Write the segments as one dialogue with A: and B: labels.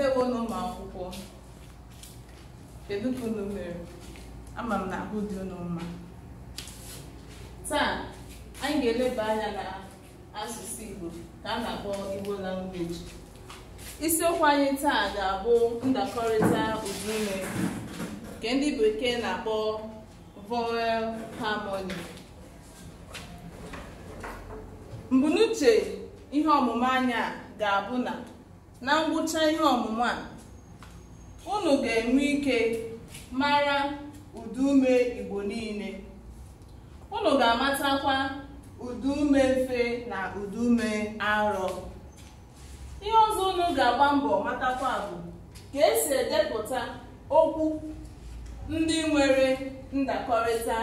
A: ndewo n'ụmụ akwụkwọ kedu ka unu mere ama m na ahụ dị mma taa anyị ga-eleba anya na asụsụ igbo ka a na-akpọ igbo language isiokwu anyị taa ga-abụ ndakọrịta ụdaume nke ndị bekee na-akpọ vowel harmony mbunuche ihe ọmụmụ anya ga-abụ na na ngwụcha ihe ọmụmụ a unu ga-enwe ike mara ụdị ume igbo niile unu ga-amatakwa ụdị ume mfe na ụdị ume arọ ihe ọzọ unu ga-agba mbọ matakwa bụ ka esi edepụta okwu ndị nwere ndakọrịta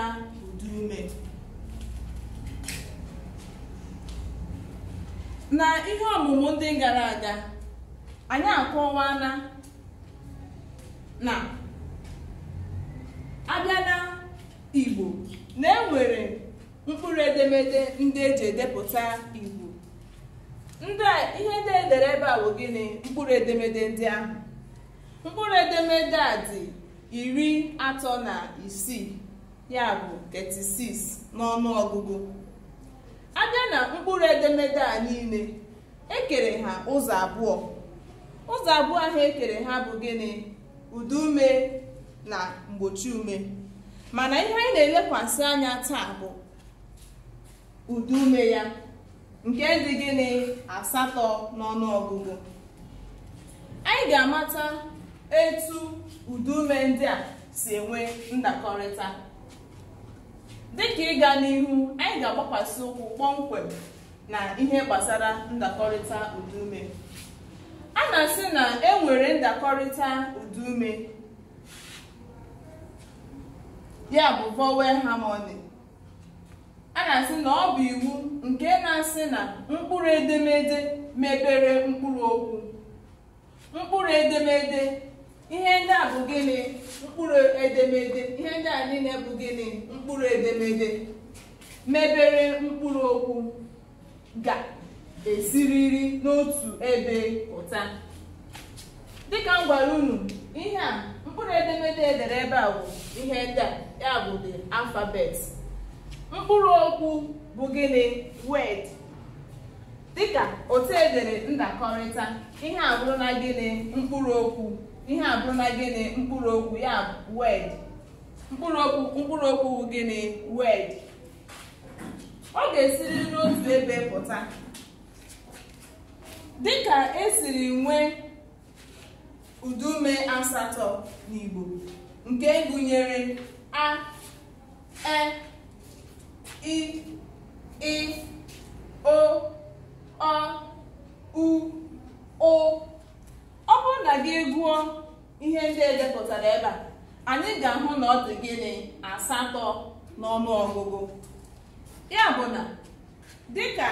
A: ụdị ume na ihe ọmụmụ ndị gara aga anyị akọwana na abịa na igbo na enwere mkpụrụ edemede ndị eji edepụta igbo ndị ihe ndị edere ebe a bụ gịnị mkpụrụ edemede ndị ahụ mkpụrụ edemede a dị iri atọ na isii ya bụ 36 n'ọnụ ọgụgụ abịa na mkpụrụ edemede a niile ekere ha ụzọ abụọ ụzọ abụọ ha ekere ha bụ gịnị ụdị ume na mgbochi ume mana ihe anyị na-elekwasị anya taa bụ ụdị ume ya nke dị gịnị asatọ ọgụgụ. anyị ga-amata etu ụdị ume ndị a si enwe ndakọrịta dịka ịga n'ihu anyị ga-agbakwasị ụkwụ kpọmkwem na ihe gbasara ndakọrịta ụdị ume. na-asị na enwere ndakọrịta udume ya bụ vowel harmony a na-asị na ọ bụ iwu nke na-asị na mkpụrụ edemede mebere mkpụrụ okwu mkpụrụ edemede ihe ndị a bụ gịnị mkpụrụ edemede ihe ndị a niile bụ gịnị mkpụrụ edemede mebere mkpụrụ okwu ga esiriri n'otu ebe pụta dịka m gwara unu ihe a mkpụrụ edemede edere ebe a bụ ihe ndị a ya bụ the alphabet mkpụrụ okwu bụ gịnị word dịka otu edere ndakọrịta ihe a na gịnị mkpụrụ okwu ihe a na gịnị mkpụrụ okwu ya bụ mkpụrụ okwu mkpụrụ okwu bụ gịnị word ọ ga-esiri n'otu ebe pụta dịka esiri nwee udume asatọ n'Igbo nke gụnyere a e i ị o ọ u o ọ bụrụ na gị gụọ ihe ndị edepụtara ebe a anyị ga-ahụ na ọ gịnị asatọ n'ọnụ ọgụgụ ya bụ na dịka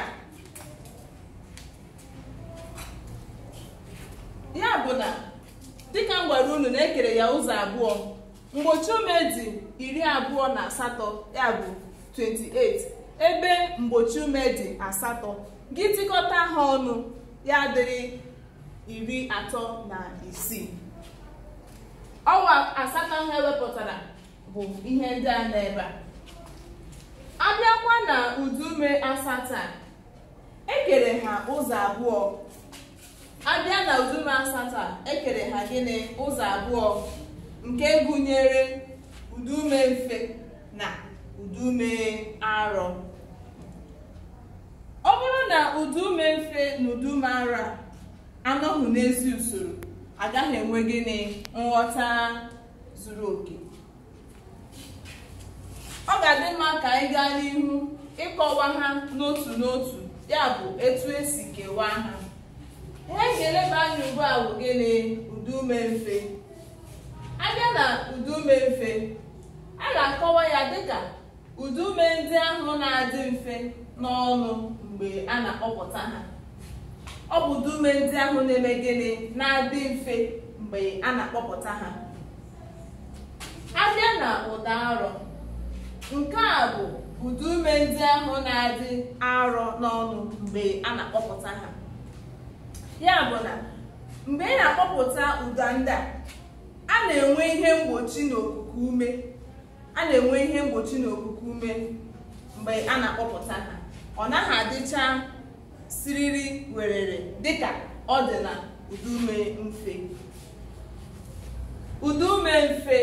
A: ya bụ na dịka m gwara unu na-ekere ya ụzọ abụọ mgbochi ume dị iri abụọ na asatọ ya bụ 28 ebe mgbochi ume dị asatọ gị tikọta ha ọnụ ya dịrị iri atọ na isii ọwa asatọ ha ewepụtara bụ ihe ndị a na ebe a abịakwa na udume asatọ a ekere ha ụzọ abụọ a abịa na udum asatọ a ekere ha gịnị ụzọ abụọ nke gụnyere udume mfe na udume arọ ọ bụrụ na udume mfe na udume arọ anọghị n'ezi usoro agaghị enwe gịnị nghọta zuru oke ọ ga-adị mma ka anyị gaa n'ihu ịkọwa ha n'otu n'otu ya bụ etu esi kewaa ha ihe ga-eleba anya ugbu a bụ gịnị mfe abịa na a ga-akọwa ya dịka udume ndị ahụ na-adị mfe n'ọnụ mgbe a na-akpọpụta ha ọ bụ udume ndị ahụ na-eme gịnị na-adị mfe mgbe a na-akpọpụta nke a bụ udume ndị ahụ na-adị arọ n'ọnụ mgbe a na-akpọpụta ha ya bụ na mgbe ị na-akpọpụta ụda ndị a a na-enwe ihe mgbochi n'okuku ume a na-enwe ihe mgbochi n'okuku ume mgbe a na-akpọpụta ha ọ naghị adịcha siriri werere dịka ọ dị na udume mfe udume mfe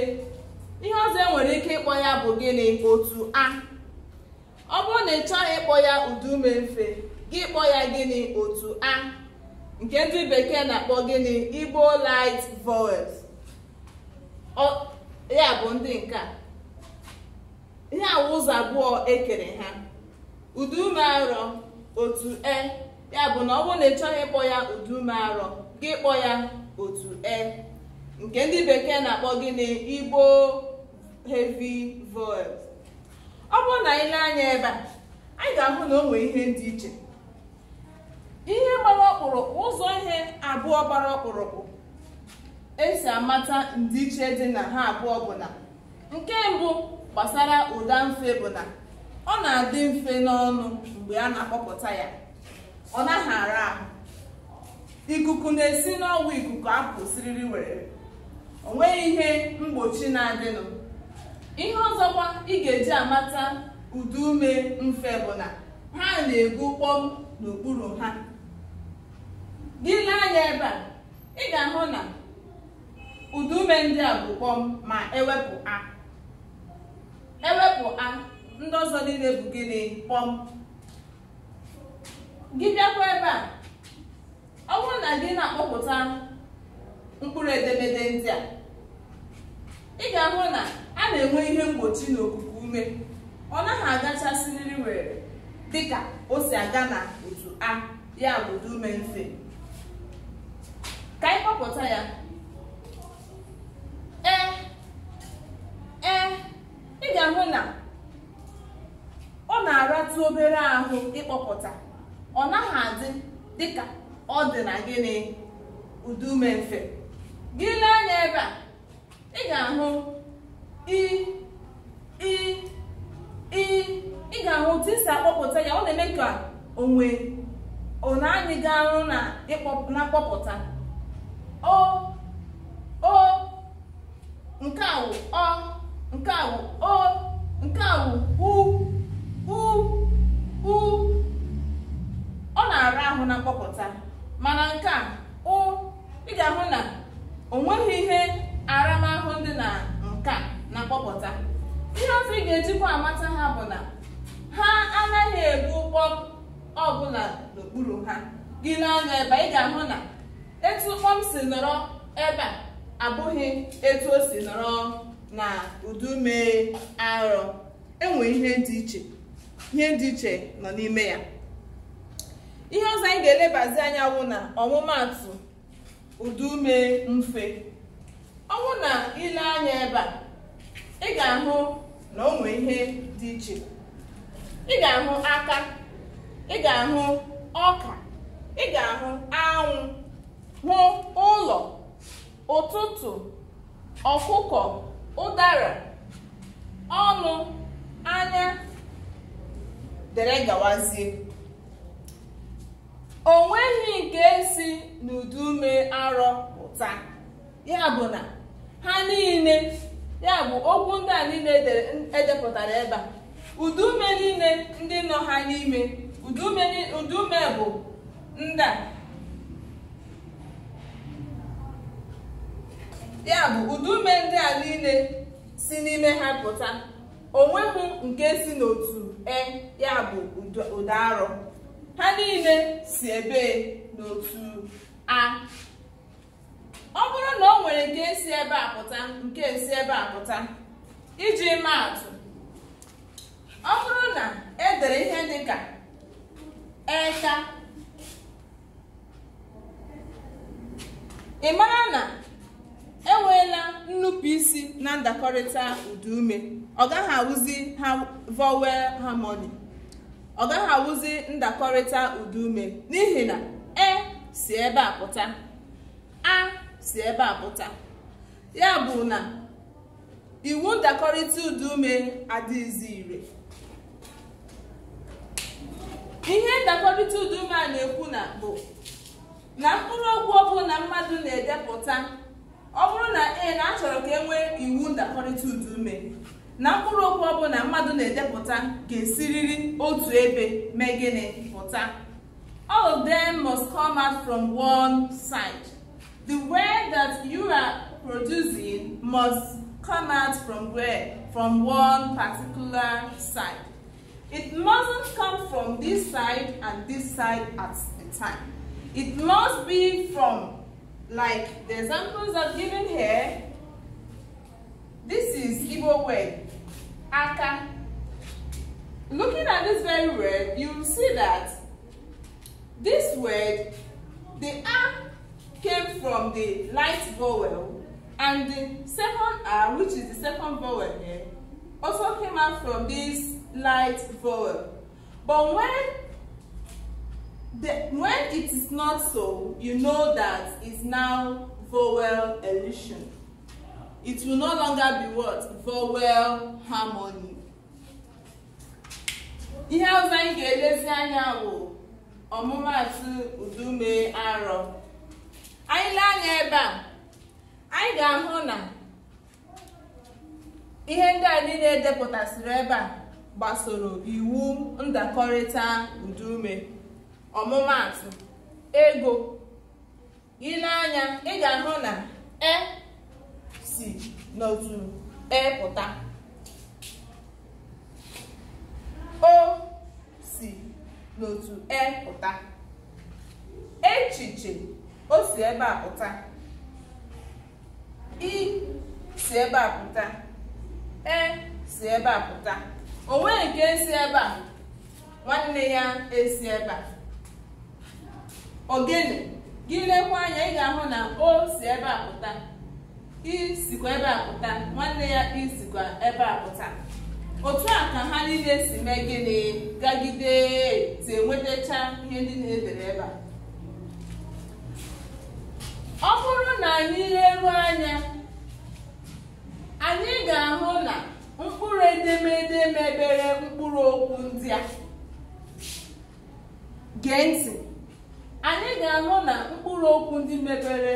A: ihe ọzọ e nwere ike ịkpọ ya bụ gịnị otu a ọ bụrụ na ị chọghị ịkpọ ya udume mfe gị kpọ ya gịnị otu a nke ndị bekee na-akpọ gịnị igbo light vowels ya bụ ndị nke a ihe awụ ụzọ abụọ ekere ha udume arọ otu e ya bụ na ọ bụrụ na ịchọghị ịkpọ ya udume arọ gị kpọ ya otu e nke ndị bekee na-akpọ gịnị igbo heavy vowels ọ bụrụ na anyị anya ebe a anyị ga-ahụ na o nwere ihe dị iche ihe gbara ọkpụrụkpụ ụzọ ihe abụọ gbara ọkpụrụkpụ esi amata ndịiche dị na ha abụọ bụ na nke mbụ gbasara ụda mfe bụ na ọ na-adị mfe n'ọnụ mgbe a na-akpọpụta ya ọ naghị ara ahụ ikuku na-esi n'ọgwụ ikuku apụsiriri were o nweghị ihe mgbochi na-adịnụ ihe ọzọkwa ị ga-eji amata ume mfe bụ na ha na ebu kpọm n'okpuru ha gị na-anya ebe a ị ga-ahụ na ụdị ume ndị a bụ kpọm ma ewepụ a ewepụ a ndị ọzọ niile bụ gịnị kpọm gị bịakwa ebe a ọ bụrụ na gị na-akpọpụta mkpụrụ edemede ndị a ị ga-ahụ na a na-enwe ihe mgbochi n'okuku ume ọ naghị agachasịrịrị were dịka o si aga na otu a ya bụ ume mfe ka anyị kpọpụta ya ee ee ị ga-ahụ na ọ na-aratụ obere ahụ ịkpọpụta ọ naghị adị dịka ọ dị na gịnị udume mfe gị lee anya ebe a ị ga-ahụ i ị ga-ahụ otu isi akpọpụta ya ọ na-eme ka onwe ọ na-anyị ga arụ na mkpọpụta o o nke a wụ ọ nke a wụ o nke a wụ u u u ọ na-ara ahụ na mkpọpụta mana nke a ụ ị ga-ahụ na o nweghị ihe aramahụ dị na nka na mkpọpụta ihe ọzọ ị ga-ejikwa amata ha bụ na ha anaghị ebu ụgbọ ọbụla n'okpuru ha gị n'anya ebe ị ga-ahụ na etu ụkpọ m si nọrọ ebe a abụghị etu o si nọrọ na udummiri arọ enwe ihe dị iche ihe dị iche nọ n'ime ya ihe ọzọ anyị ga-elebazi anya bụ na ọmụmatụ udume mfe ọ bụ na ile anya ebe a ị ga-ahụ na onwe ihe dị iche ị ga-ahụ aka ị ga-ahụ ọka ị ga-ahụ anwụ hụ ụlọ ụtụtụ ọkụkọ ụdara ọnụ anya dere gawazie o nweghị nke si n'udume arọ pụta ya bụ na ha niile ya bụ okwu ndị a niile edepụtara e ebe a udume niile ndị nọ ha n'ime udume bụ ndị a ya bụ udume ndị a niile si n'ime ha pụta onweghị nke si n'otu e ya bụ ụda arọ ha niile si ebe n'otu a ọ bụrụ na o nwere nke si ebe a pụta nke si ebe a pụta iji maa atụ ọ bụrụ na e dere ihe dị ka eka ị mara na enweela nnupụ isi na ndakọrịta ume ọ gaghị awụzi ha vowel harmony ọ gaghị awụzi ndakọrịta ume n'ihi na e si ebe a pụta a si ebe a pụta ya bụ na iwu ndakọrịta udume adịghịzi ire ihe ndakọrịta udume a na-ekwu na bụ na mkpụrụ okwu ọbụla mmadụ na-edepụta ọ bụrụ na ee na achọrọ ka e nwee iwu ndakọrịta udu ume na mkpụrụ okwu ọbụla mmadụ na-edepụta ga-esiriri otu ebe mee gịnị pụta all of them must come out from one side the way that you are producing must come out from where from one particular side it mustn't come from this side and this side at a time it must be from Like the examples I've given here, this is Igbo word, aka. Looking at this very word, you'll see that this word, the a came from the light vowel and the second r, which is the second vowel here, also came out from this light vowel. But when The, when it is not so, you know that it's now vowel elision. It will no longer be what? Vowel harmony. Ihe ọzọ anyị ga-elezi anya bụ ọmụmatụ udume arọ. Anyị lee anya ebe a, anyị ga-ahụ na ihe ndị a niile edepụtasịrị ebe a gbasoro iwu ndakọrịta udume. ọmụmatụ ego ị na-anya ị ga-ahụ na e si n'otu e pụta o si n'otu e pụta echiche o si ebe a pụta i si ebe a pụta e si ebe a pụta o nweghị nke esi ebe a nwanne ya esi ebe a ogene gị lekwa anya ị ga-ahụ na o si ebe a pụta i sikwa ebe a pụta nwanne ya isikwa ebe a pụta otu a ka ha niile si mee gịnị gagide ti enwetacha ihe ndị na-edere ebe a ọ bụrụ na anyị leruo anya anyị ga-ahụ na mkpụrụ edemede mebere mkpụrụ okwu ndị a gee ntị anyị ga-anụ na mkpụrụ okwu ndị mebere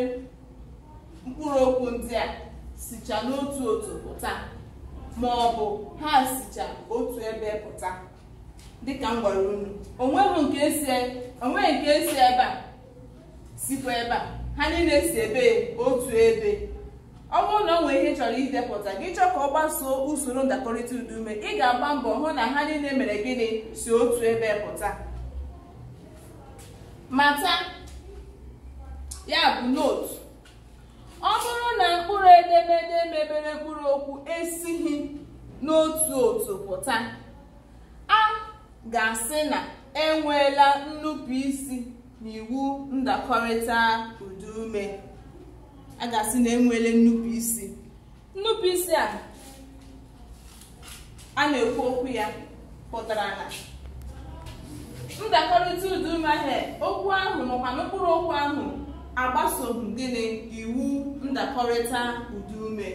A: mkpụrụ okwu ndị a sicha n'otu otu pụta ma ọ bụ ha sicha otu ebe pụta dịka m gwara unu onweghị nke esi e, e ebe a sikwa ebe a ha niile si ebe otu ebe ọ bụrụ na ọ nwere ihe chọrọ idepụta gị chọọ ka ọ gbasoo usoro ndakọrịta udume ị ga-agba mbọ hụ na ha niile mere gịnị si otu ebe pụta mata ya bụ notu ọ bụrụ na mkpụrụ edemede mebere mkpụrụ okwu esighi n'otu otu pụta a ga-asị na enweela nnupụisi n'iwu ndakọrịta udume a ga-asị na enweela nnupụisi nnupụisi a a na-ekwu okwu ya pụtara na ndakọrịta udumahie okwu ahụ makwa n'okpuru okwu ahụ agbasoghị gịnị iwu ndakọrịta ume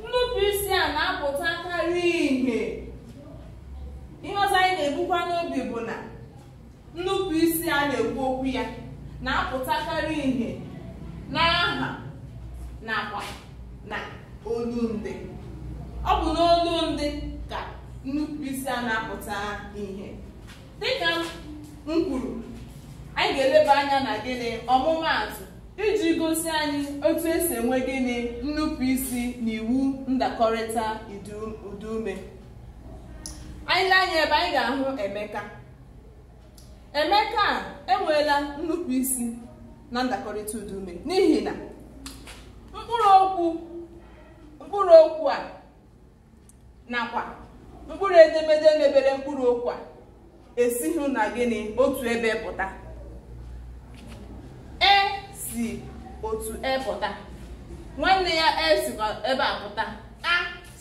A: nnupụisi a na-apụtakarị ihe ihe ọzọ anyị na-ebukwa n'obi bụ na nnupụisi a na-ekwu okwu ya na-apụtakarị ihe n'aha nakwa na olundị ọ bụ n'olundị ka nnupụisi a na-apụta ihe dịka m kwuru anyị ga-eleba anya na gịnị ọmụmaatụ iji gosi anyị otu esi enwe gịnị nnupụ isi na iwu ndakọrịta udume anyị lee anya ebe anyị ga-ahụ emeka emeka enweela nnupụ isi na ndakọrịta udume n'ihi na mkpụrụ okwu a nakwa mkpụrụ edemede mebere mkpụrụ okwu a esighị na gịnị otu ebe pụta e si otu e pụta nwanne ya e sikwa ebe a pụta a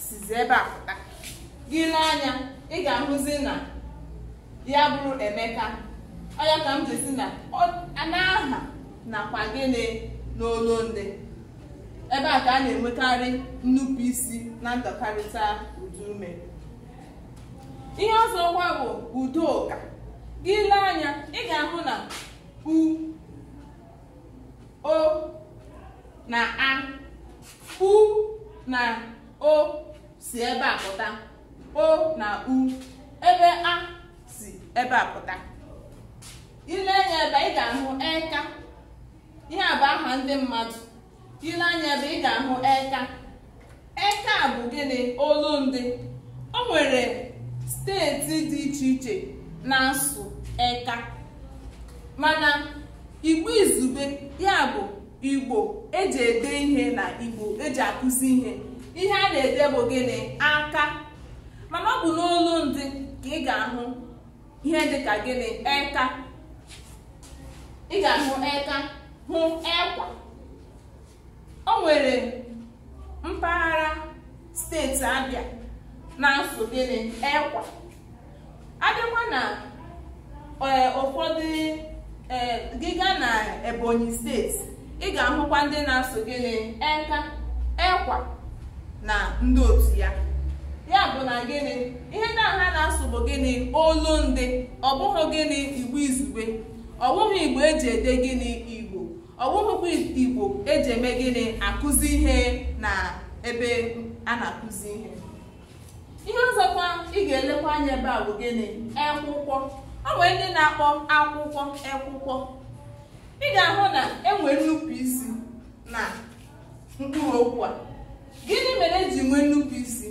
A: sizi ebe a pụta gị n'anya ị ga-ahụzi na ya bụrụ emeka ọya ka m jesi na na-aha nakwa gịnị n'olu ndị ebe a ka a na-enwekarị isi na ndọkarịta udume ihe ọzọ ngwa bụ ụka gị lee anya ị ga-ahụ na u o na a u na o si ebe a pụta o na u ebe a si ebe a pụta ile anya ebe ị ga-ahụ eka ihe a bụ aha ndị mmadụ ile anya ebe ị ga-ahụ eka eka bụ gịnị olu ndị o nwere steeti dị iche iche na-asụ eka mana igbo izube ya bụ igbo eji ede ihe na igbo eji akụzi ihe ihe a na-ede bụ gịnị aka mana ọ bụ n'olu ndị ka ị ga-ahụ ihe dị dịka gịnị eka ị ga-ahụ eka hụ ekwa o nwere mpaghara steeti Abịa na nsụ gịnị ekwa adịkwa na e, ụfọdụ e, gịga na ebonyi steeti ị ga-ahụkwa ndị na-asụ gịnị eka ekwa na ndị otu ya ya bụ na gịnị ihe ndị aha na-asụ bụ gịnị olundị ọ bụghị gịnị igbo izugbe ọ bụghị igbo eji ede gịnị igbo ọ igbo eji eme gịnị akụzi ihe na ebe a na-akụzi ihe ihe ọzọkwa ị ga-elekwa anya ebe a bụ gịnị ekwụkwọ ọ ndị na-akpọ akwụkwọ ekwụkwọ ị ga-ahụ na enwere nnukwu isi na mkpụrụ okwu a gịnị mere eji nwee nnukwu isi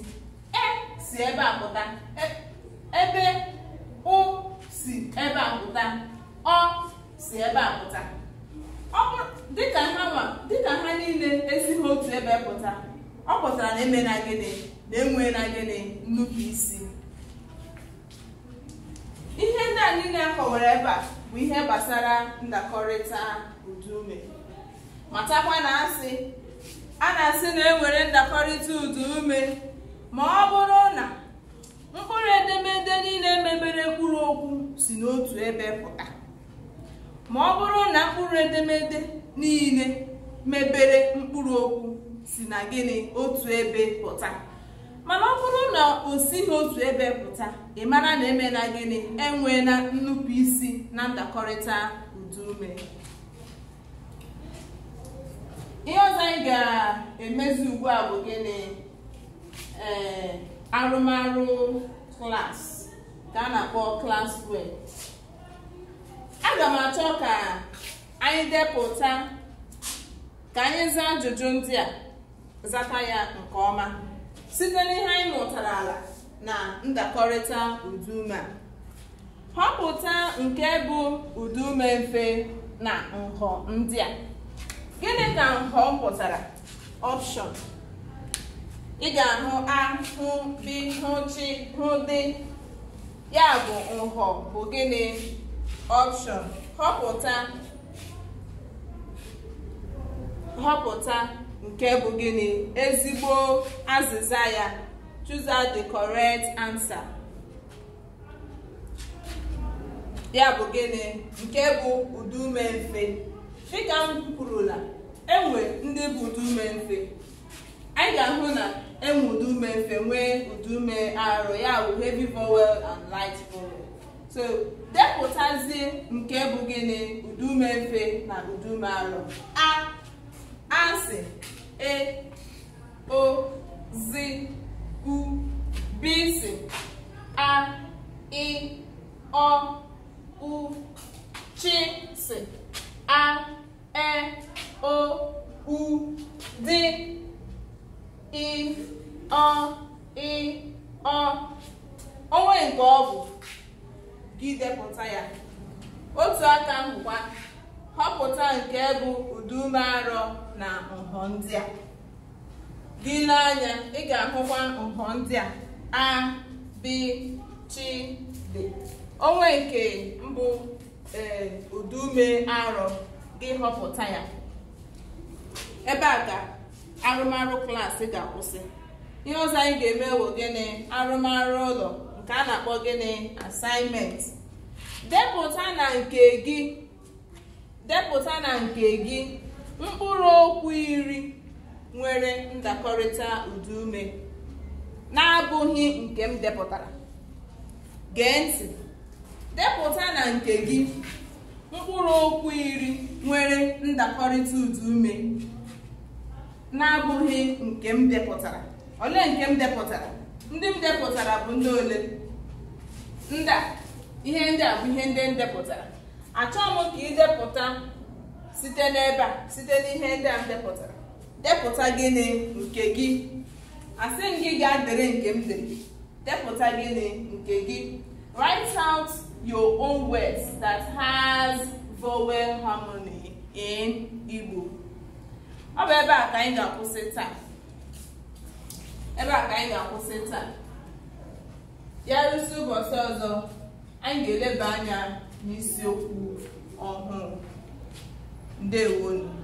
A: e si ebe a e, ebe ụ si ebe a pụta ọ si ebe a pụta dịka ha niile esighị otu ebe pụta ọ pụtara na emena gịnị na-enwe na gịnị nnukwu isi ihe ndị na na akọwara ebe a bụ ihe gbasara ndakọrịta udume matakwa na asị a na-asị na enwere ndakọrịta ụdị udume ma ọ bụrụ na mkpụrụ edemede niile mebere mkpụrụ okwu si n'otu ebe pụta ma ọ bụrụ na mkpụrụ edemede niile mebere mkpụrụ okwu si na gịnị otu ebe pụta mana ọ na o sighị otu ebe pụta ị mara na emela gịnị enweela nnupụ isi na ndakọrịta ume ihe ọzọ anyị ga-emezi ugbu a bụ gịnị ee arụmarụ klaasị ka a na-akpọ klas wee aga m achọ ka anyị depụta ka anyị zaa ajụjụ ndị a zata ya nke ọma site n'ihe anyị ala na ndakọrịta udume a họpụta nke bụ udume mfe na nhọ ndị a gịnị ka nhọ pụtara ọpshọn ị ga-ahụ ahụ bi hụ chi hụ dị ya bụ nhọ bụ gịnị ọpshọn họpụta họpụta nke bụ gịnị ezigbo azịza ya choose the correct answer ya bụ gịnị nke bụ udume mfe dịka m kwurula enwe ndị bụ udume mfe anyị ga-ahụ na enwe udume mfe nwee udume arọ ya bụ heavy bowel and light bowel. so depụtazie nke bụ gịnị udume mfe na udume arọ a asị e o zi u bisi a i ọ u chi si a e o u dị ị ọ ọ onwe nke ọ bụ gị depụta ya otu aka nkwụkwa họpụta nke bụ ụdị ume arọ na nhọ ndị a dị n'anya ị ga-ahụkwa nhọ ndị a a onwe nke mbụ ee udume arọ gị họpụta ya ebe a ka arụmarụ klaasị ga-akwụsị ihe ọzọ anyị ga-eme wụ gịnị arụmarụ ụlọ nke a na-akpọ gịnị asaịnment na nke depụta na nke gị mkpụrụ okwu iri nwere ndakọrịta ụdị na-abụghị nke m depụtara gee ntị depụta na nke gị mkpụrụ okwu iri nwere ndakọrịta ụdị na-abụghị nke m depụtara ole nke m depụtara ndị m depụtara bụ ndị ole ndị a ihe ndị a bụ ihe ndị m depụtara achọghị m ka ị depụta site n'ebe a site n'ihe ndị a m depụtara depụta gịnị nke gị asị m gị gaa dere nke m dere depụta gịnị nke gị write out your own words that has vowel harmony in Igbo ọ bụ ebe a ka anyị ga-akwụsị taa ebe a ka anyị ga-akwụsị taa ya rụsi ụbọchị ọzọ anyị ga-eleba anya n'isiokwu ọhụrụ 对。